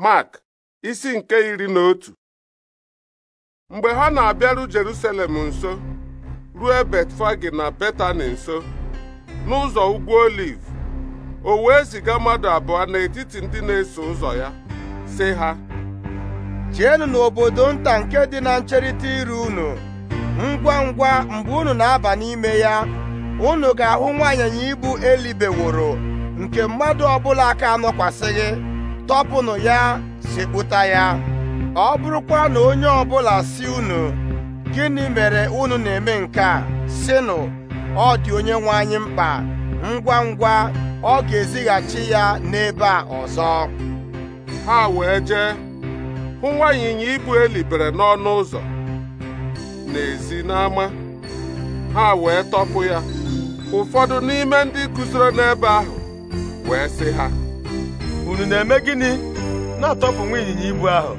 Mark isi nke iri na otu mgbe ha na-abịaru Jerusalem nso ruo Betfagi na Betani nso n'ụzọ ugwu Oliv o wee ziga mmadụ abụọ n'etiti ndị na-eso ụzọ ya sị ha Jeenu n'obodo nta nke dị na ncherịta iru unu ngwa ngwa mgbe unu na-aba n'ime ya unu ga-ahụ nwaanyịnya ibu elibeworo nke mmadụ ọbụla aka anọkwasịghị tọpụnụ ya si kpụta ya ọ bụrụkwa na onye ọbụla si unu gịnị mere unu na-eme nke a sịnụ ọ dị onye nwe anyị mkpa ngwa ngwa ọ ga-ezighachi ya n'ebe a ọzọ ha wee jee hụ nwa ịnyịnya ibu elibere n'ọnụ ụzọ n'ezi n'ama ha wee tọpụ ya ụfọdụ n'ime ndị guzoro n'ebe ahụ wee sị ha unu na-eme gịnị na-atọpụ nwa ịnyịnya ibu ahụ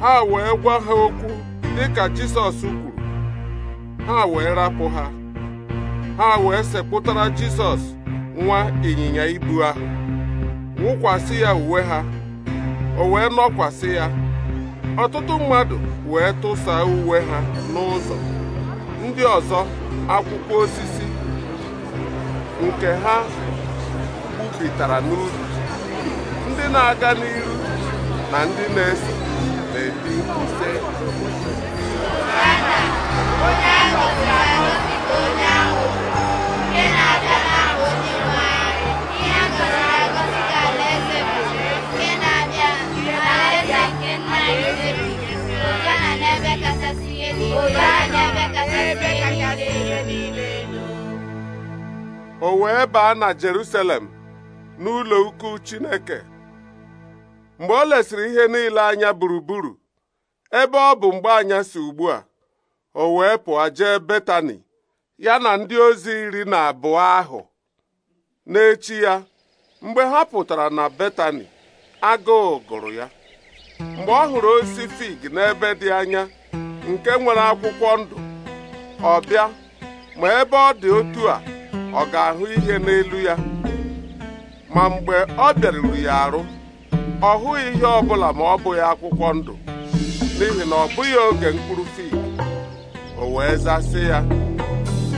ha wee gwa ha okwu dịka Jisọs kwuru ha wee rapụ ha ha wee sekpụtara Jisọs nwa ịnyịnya ibu ahụ wụkwasị ya uwe ha o wee nọkwasị ya ọtụtụ mmadụ wee tụsa uwe ha n'ụzọ ndị ọzọ akwụkwọ osisi nke ha gbupụtara n'ubi ndị na-aga n'ihu na ndị na esi na ebi mkpu sị ahụ nke na-abịa na-ahụ ka nke na nke nna na o wee baa na Jerusalem n'ụlọ ukwu Chineke mgbe o lesịrị ihe niile anya gburugburu ebe ọ bụ mgbe si ugbu a o wee pụọ jee Betani ya na ndị ozi iri na abụọ ahụ n'echi ya mgbe ha pụtara na Betani agụụ gụrụ ya mgbe ọ hụrụ osisi fig n'ebe dị anya nke nwere akwụkwọ ndụ ọ bịa ma ebe ọ dị otu a ọ ga-ahụ ihe n'elu ya ma mgbe ọ bịaruru ya arụ ọ hụghị ihe ọ bụla ma ọ bụghị akwụkwọ ndụ n'ihi na ọ bụghị oge mkpụrụ fi o wee zasị ya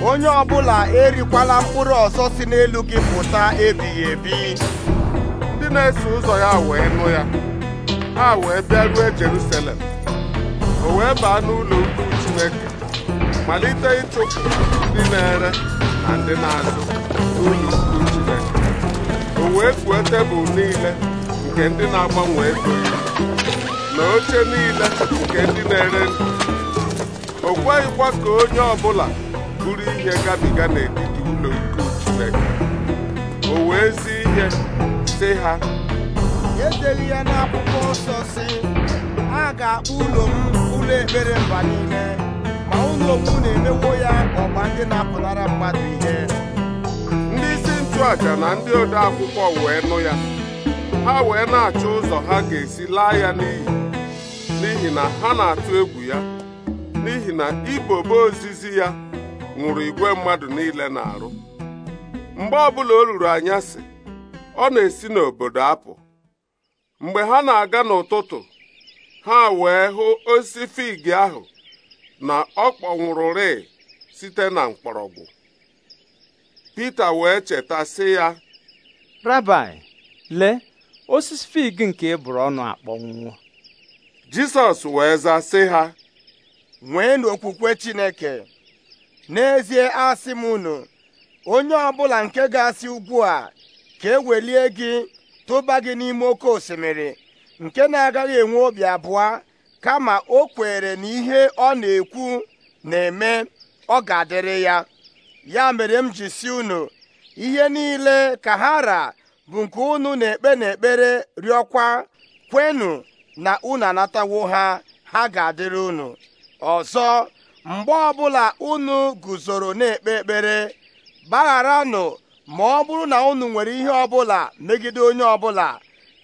onye ọbụla erikwala mkpụrụ ọzọ si n'elu gị pụta ebighị ebi ndị na-eso ụzọ ya wee nụ ya ha wee bịaruo Jerusalem o wee baa n'ụlọ ukwu Chineke malite ịchụpụ ndị na-ere na ndị na-azụ n'ụlọ ukwu Chineke o wee kwuo tebụl niile nke ndị na-agbanwe ego na oche niile nke ndị na-ere ndụ o kweghịkwa ka onye ọbụla bụrụ ihe gabiga n'etiti ụlọ ikwu Chineke o wee zi ihe sị ha edeli ya n'akwụkwọ nsọ si a ga-akpọ ụlọ m ụlọ ekpere mba niile ma ụlọ m na-emewo ya ọgba ndị na-apụnara mmadụ ihe ndị isi nchụaja na ndị ode akwụkwọ wee nụ ya ha wee na-achọ ụzọ ha ga-esi laa ya n'iyi n'ihi na ha na-atụ egwu ya n'ihi na ibobo ozizi ya ṅụrụ igwe mmadụ niile na-arụ mgbe ọbụla o ruru anyasị ọ na-esi n'obodo apụ mgbe ha na-aga n'ụtụtụ ha wee hụ osisi fig ahụ na ọ rịị site na mkpọrọgwụ Pita wee cheta sị ya lee osisi fig nke e bụrụ ọnụ akpọnwụọ jesus wee zaa sị ha Nwee n'okwukwe chineke n'ezie asị m unu onye ọbụla nke ga-asị ugwu a ka ewelie gị tụba gị n'ime oke osimiri nke na-agaghị enwe obi abụọ kama o kwere na ihe ọ na-ekwu na-eme ọ ga-adịrị ya ya mere m ji si unu ihe niile ka ha ra bụ nke unu na-ekpe n'ekpere rịọkwa kwenụ na unu anatawo ha ha ga-adịrị unu ọzọ mgbe ọbụla unu guzoro na-ekpe ekpere gbagharanụ ma ọ bụrụ na unu nwere ihe ọbụla megide onye ọbụla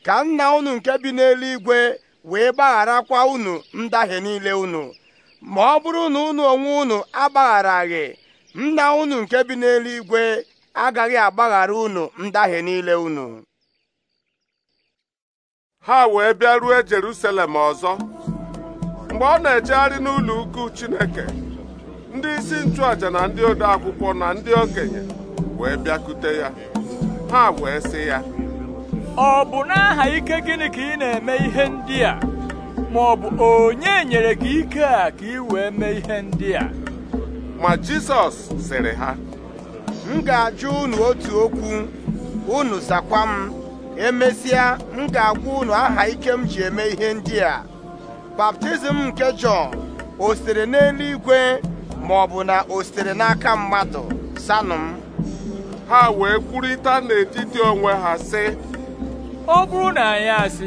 ka nna unu nke bi n'eluigwe wee gbagharakwa unu ndahie niile unu ma ọ bụrụ na unu onwe unu agbagharaghị nna unu nke bi n'eluigwe agaghị agbaghara unu ndahie niile unu ha wee bịa ruo Jerusalem ọzọ mgbe ọ na-ejegharị n'ụlọ ukwu Chineke ndị isi nchụàjà na ndị ode akwụkwọ na ndị okenye wee bịakute ya ha wee sị ya ọ bụ n'aha ike gịnị ka ị na-eme ihe ndị a ma ọ bụ onye nyere gị ike a ka ị wee mee ihe ndị a ma Jisọs sịrị ha m ga-ajụ unu otu okwu unu zakwa m emesịa m ga-agwa unu aha ike m ji eme ihe ndị a baptizim nke Jọn o n'eluigwe ma ọ bụ na o n'aka mmadụ sanụ m ha wee kwurịta n'etiti onwe ha sị ọ bụrụ na anyị asị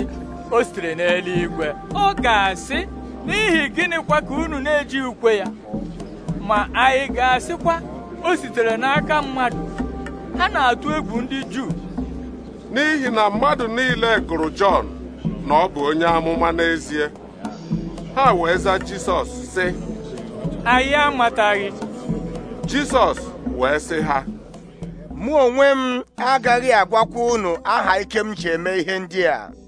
o n'eluigwe ọ ga-asị n'ihi gịnịkwa ka unu na-eji ukwe ya ma anyị ga-asịkwa o sitere n'aka mmadụ ha na-atụ egwu ndị Juu n'ihi na mmadụ niile gụrụ Jọn na ọ bụ onye amụma n'ezie ha wee za Jisọs sị anyị amataghị Jisọs wee sị ha mụ onwe m agaghị agwakwa unu aha ike m ji eme ihe ndị a